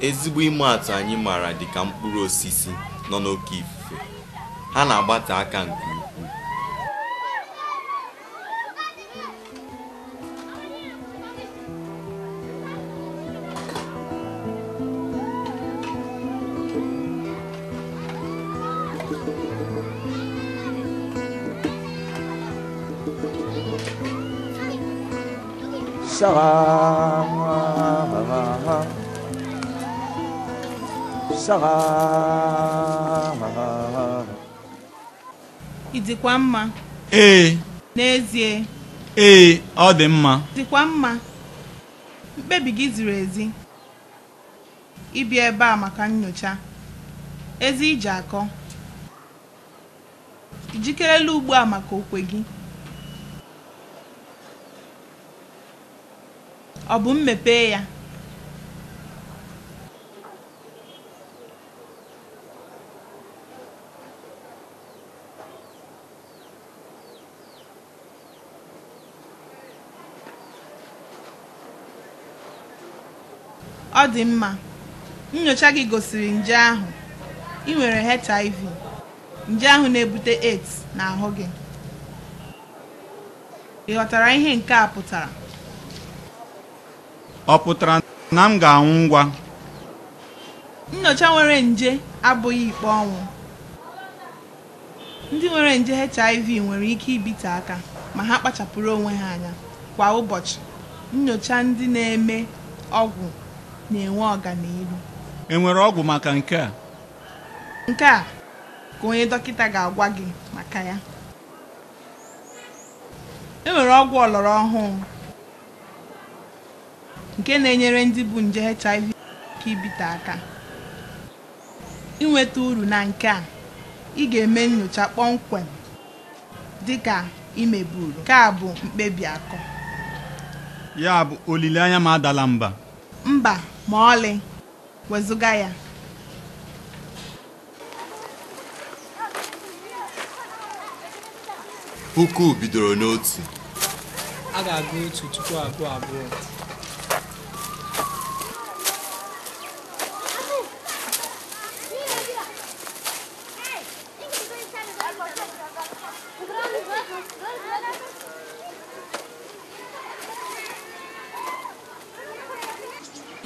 Ezigbo ime atụ anyị maara dị ka mkpụrụ osisi nọ n'oke ifufe, ha na agbata aka nke ukwuu. ị dịkwa mma ee n'ezie ee ọ dị mma dịkwa mma mkpebi gị ziri ezi ịbịa ebe a maka nyocha ezi iji akọ ijikerela ugbu a maka okwe gị ọ bụ mmepe ya ọ dị mma nyocha gị gosiri nje ahụ ị nwere HIV nje ahụ na-ebute AIDS ahụ gị ị ghọtara ihe nke a pụtara ọ pụtara na m ga-anwụ ngwa nyocha nwere nje abụghị ikpe ọnwụ ndị nwere nje HIV nwere ike ibite aka ma ha kpachapụrụ onwe ha anya kwa ụbọchị nyocha ndị na-eme ọgwụ na-enwe ọganihu enwere ọgwụ maka nke a nke a ka onye dọkịta ga-agwa gị maka ya enwere ọgwụ ọlọrọ ọhụụ nke na-enyere ndị bụ nje HIV ka ibite aka inweta uru na nke a ị ga-eme nyocha kpọmkwem dịka imeburu nke a bụ mkpebi akọ ya bụ olileanya ma adala mba mba ma ọlị wezụga ya puku bidoro n'otu a ga-agụ otu tupu abụọ abụọ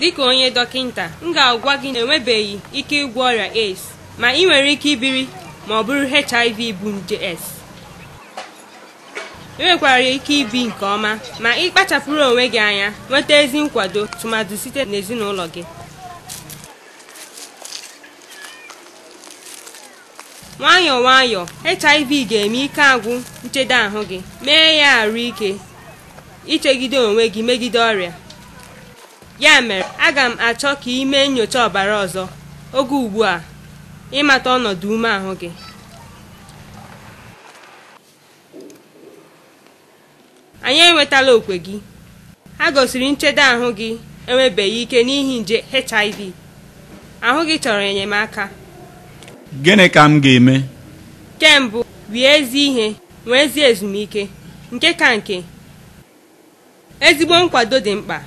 dịka onye dọkịnta m ga-agwa gị na enwebeghị ike ịgwọ ọrịa AIDS ma ị nwere ike ibiri ma ọ bụrụ HIV bụ nje S enwekwara nwekwara ike ibi nke ọma ma ị kpachapụrụ onwe gị anya nweta ezi nkwado tụmadụ site n'ezinụlọ gị nwayọọ nwayọọ HIV ga-eme ike agwụ nchedo ahụ gị mee ya arụ ike ichegide onwe gị megide ọrịa ya mere aga m achọ ka ị mee nyocha ọbara ọzọ oge ugbu a ịmata ọnọdụ ume ahụ gị anyị enwetala okwe gị ha gosiri nchedo ahụ gị enwebeghị ike n'ihi nje hiv ahụ gị chọrọ enyemaka gịnị ka m ga-eme kembụ rie ezi ihe nwee ezi ezumike nke ka nke ezigbo nkwado dị mkpa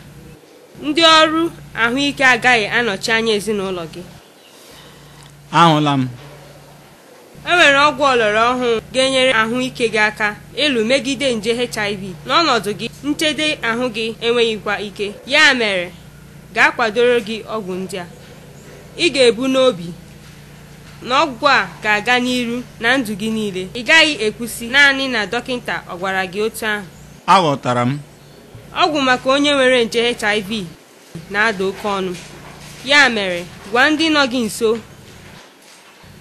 ndị ọrụ ahụike agaghị anọchi anya ezinụlọ gị ahụla m e nwere ọgwụ ọlọrọ ọhụụ ga-enyere ahụike gị aka ịlụ megide nje HIV n'ọnọdụ gị nchede ahụ gị enweghịkwa ike ya mere gaa kwadoro gị ọgwụ ndị a ị ga-ebu n'obi na ọgwụ a ga-aga n'iru na ndụ gị niile ị gaghị ekwusi naanị na dọkịta ọ gwara gị otu ahụ aghọtara m ọgwụ maka onye nwere nje hiv na-ada oke ọnụ ya mere gwa ndị nọ gị nso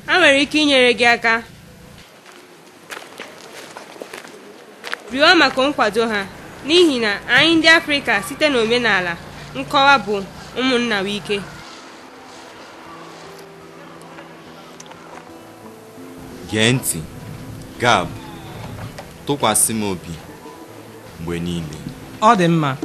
ha nwere ike inyere gị aka rịọ maka nkwado ha n'ihi na anyị ndị afrịka site n'omenala nkọwa bụ ụmụnna wike gee ntị gab tụkwasị m obi mgbe niile Ademma.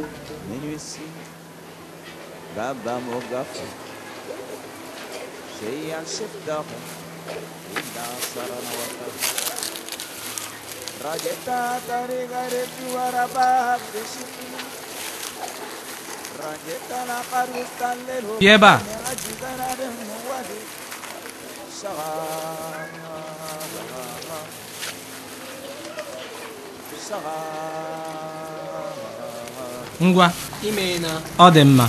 Rajeta tari garip Iya, ngwa ọ dị mma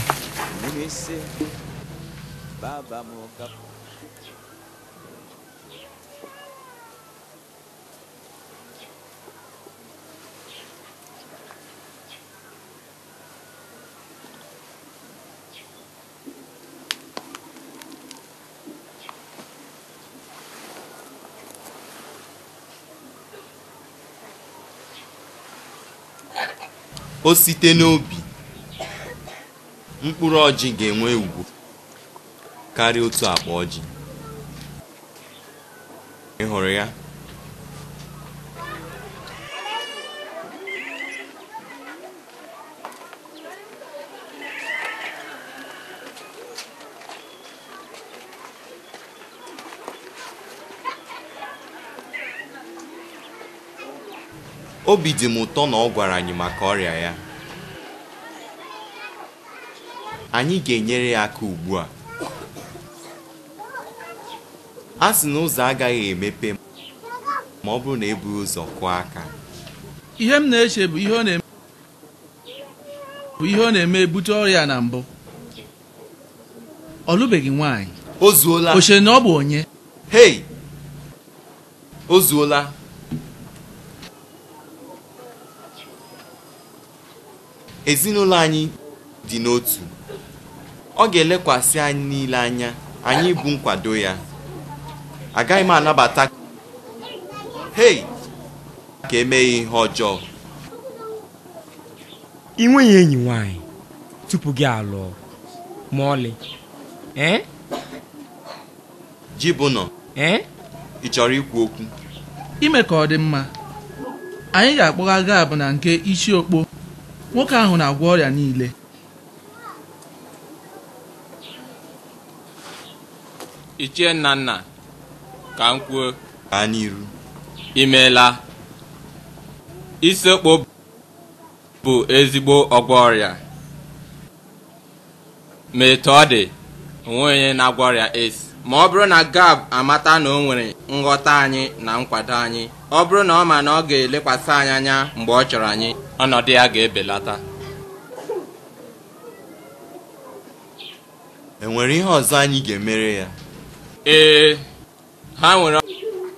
o site n'obi mkpụrụ ọjị ga-enwe ugwu karịa otu akpa ọjị ị ya obi dị m ụtọ na ọ gwara anyị maka ọrịa ya anyị ga-enyere ya aka ugbu a a sị na ụzọ agaghị emepe ma ọ bụrụ na ebughị ụzọ kụọ aka ihe m na-eche bụ ihe ọ na-eme ebute ọrịa na mbụ ọ lụbeghị nwaanyị o zuola na ọ bụ onye hei o zuola ezinụlọ anyị dị n'otu ọ ga-elekwasị anyị niile anya anyị bụ nkwado ya agaghị m anabata hei ka emeghị ihe ọjọọ ị nweghị enyi nwanyị tupu gị alụọ ma ọlị e? nọ e? ị chọrọ ikwu okwu ime ka ọ dị mma anyị ga-akpọga gaabụ na nke isi okpo nwoke ahụ na-agwọ ọrịa niile ichie nnanna ka m kwuo n'iru imeela isekpo bụ ezigbo ọgwọ ọrịa ma etu ọ dị onwe onye na-agwọ ọrịa es ma ọ bụrụ na gab amata na o nwere nghọta anyị na nkwado anyị ọ bụrụ na ọ ma na ọ ga-elekwasị anyị anya mgbe ọ chọrọ anyị ọnọdụ ya ga-ebelata enwere ihe ọzọ anyị ga-emere ya ee ha nwere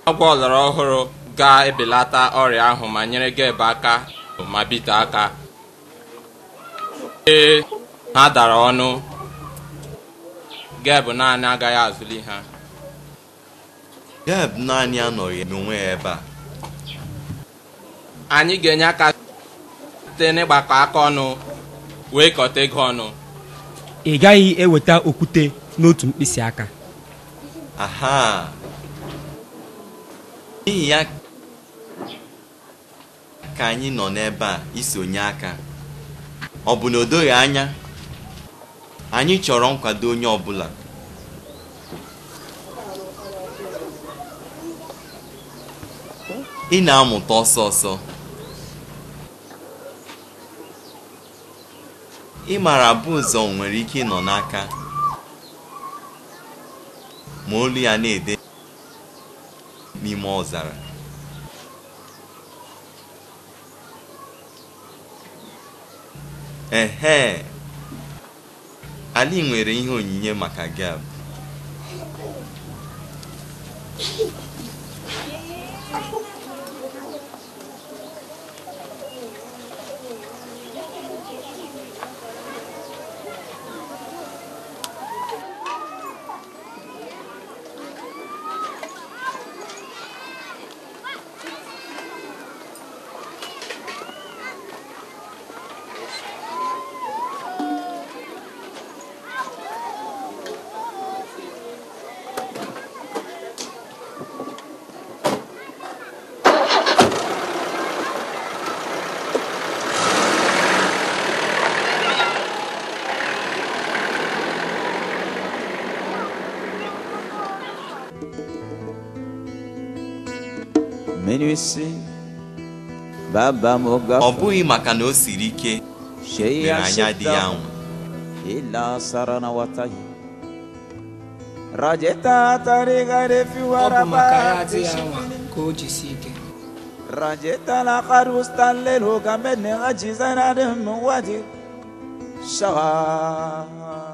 ọgwụ ọlọrọ ọhụrụ ga-ebelata ọrịa ahụ ma nyere gebu aka ma bite aka ee ha dara ọnụ geb naanị agaghị azụli ha geb naanị anọghị n'onwe ya ebe a anyị ga-enye aka site n'ịgbakọ aka ọnụ wee kọta ego ọnụ ị gaghị eweta okwute n'otu mkpịsị aka aha n'ihi ya ka anyị nọ n'ebe a isonye aka ọ bụ na o doghị anya anyị chọrọ nkwado onye ọbụla ị na-amụta ọsọ ọsọ ịmara bụ ụzọ nwere ike ịnọ n'aka ma olu ya na-ede n'ime ọzara ehe ali nwere ihe onyinye maka gab isi baba m gafe ọ bụghị maka na o siri ike mere anya dị ya nwa ila sara na watahi rajeta tarigare fiwara ka o jisi ike rajeta la karustalel hogamene ajizanadem wadi shawa